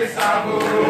de sabor.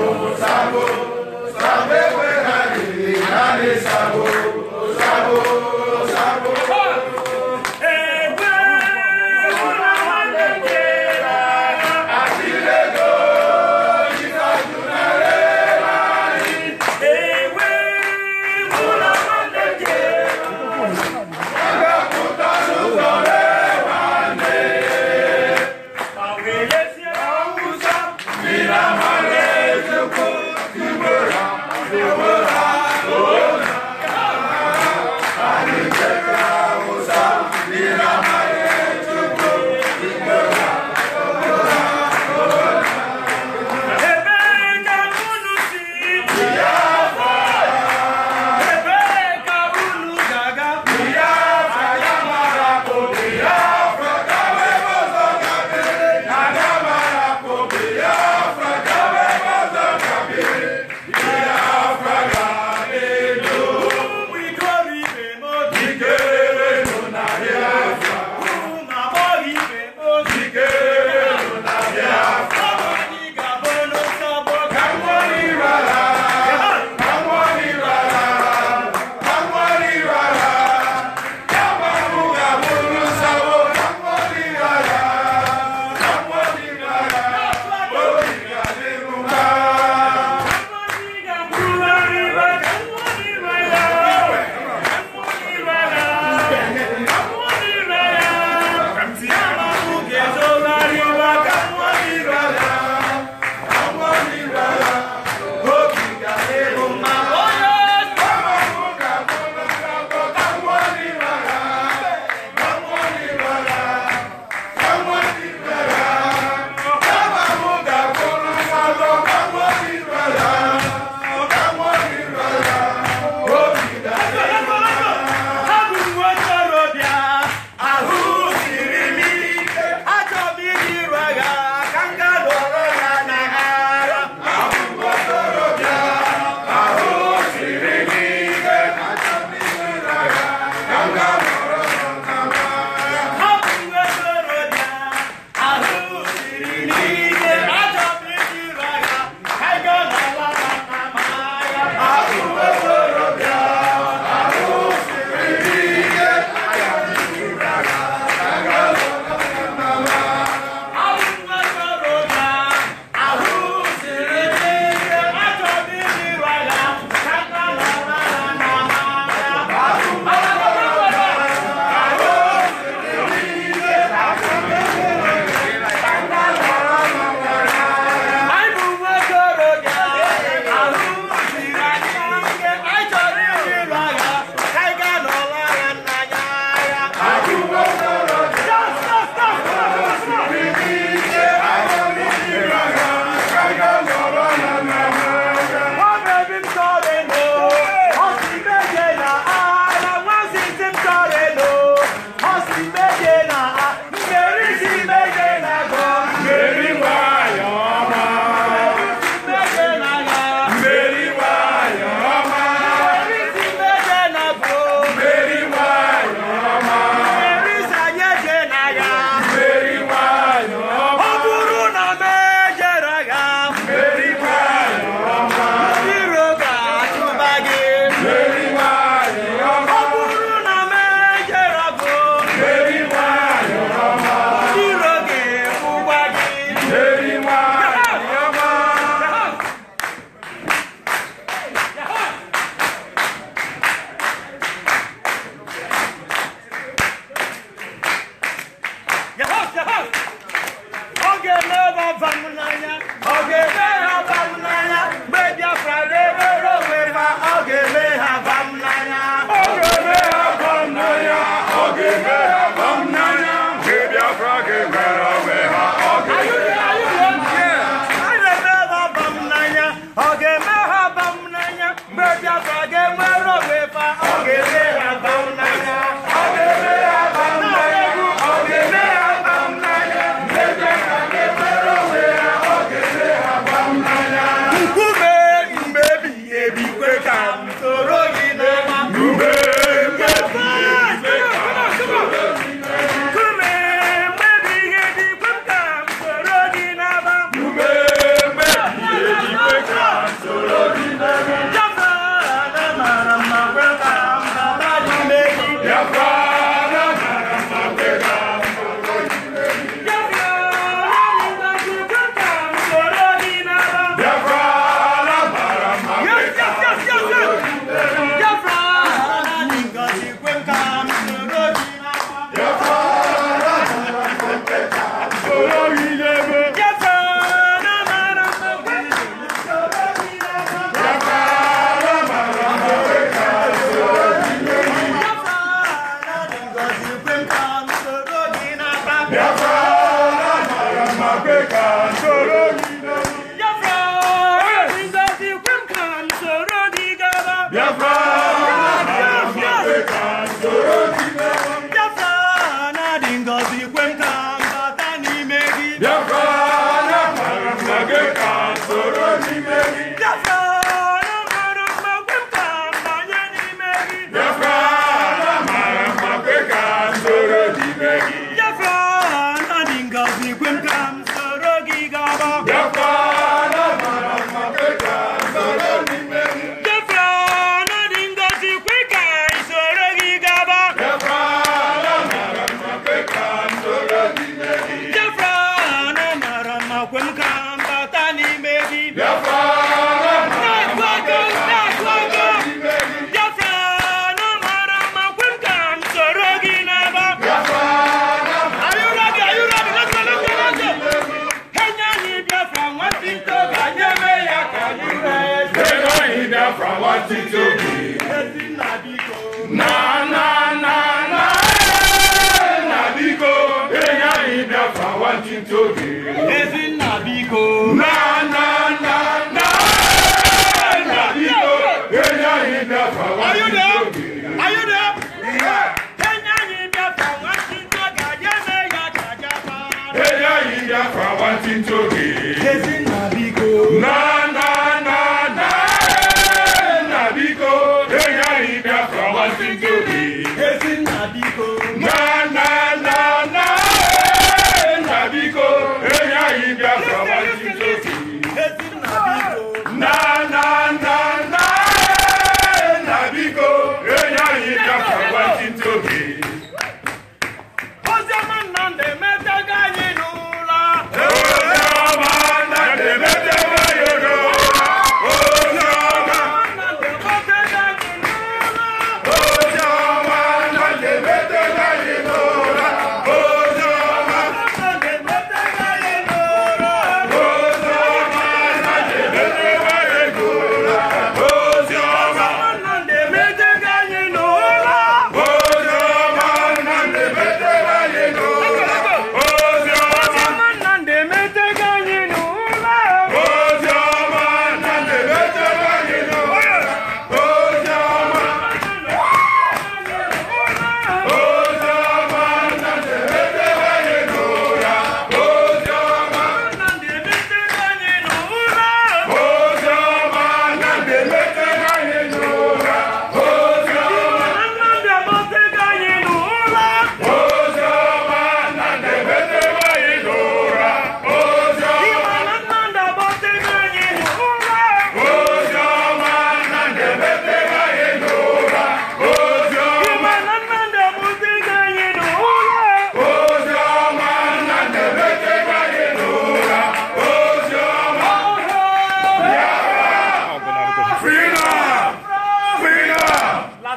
enough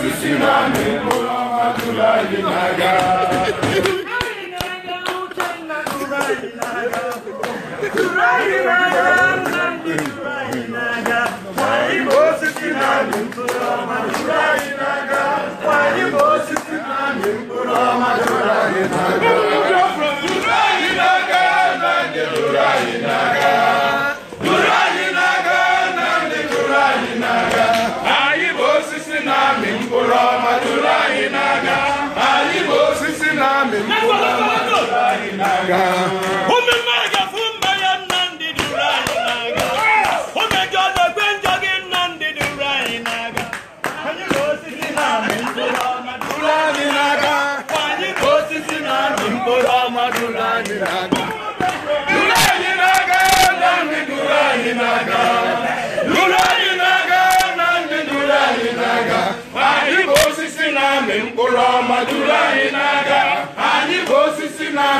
sisi nani Muhammadullah inaga. Turai inaga, turai inaga, turai inaga. mi kò lọ́wọ́ láyé náà.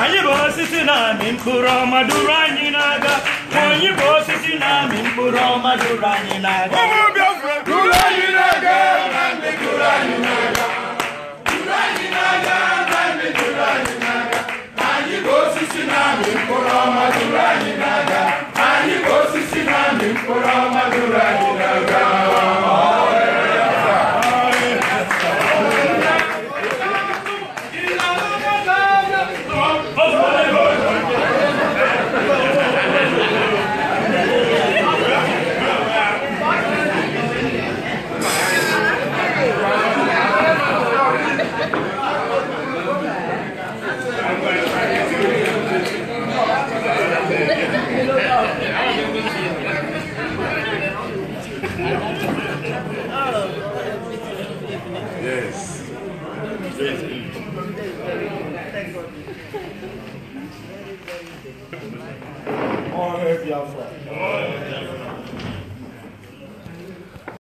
anyị bụ osisi na-amị mkpụrụ ọma duru anyị n'aga anyị bụ osisi na-amị mkpụrụ ọma duru anyị n'aga ụmụ Biafra duru anyị n'aga na ndị duru anyị n'aga duru anyị n'aga ka osisi na-amị mkpụrụ ọma juru anyị n'aka anyị ka osisi na mkpụrụ ọma juru anyị conflict.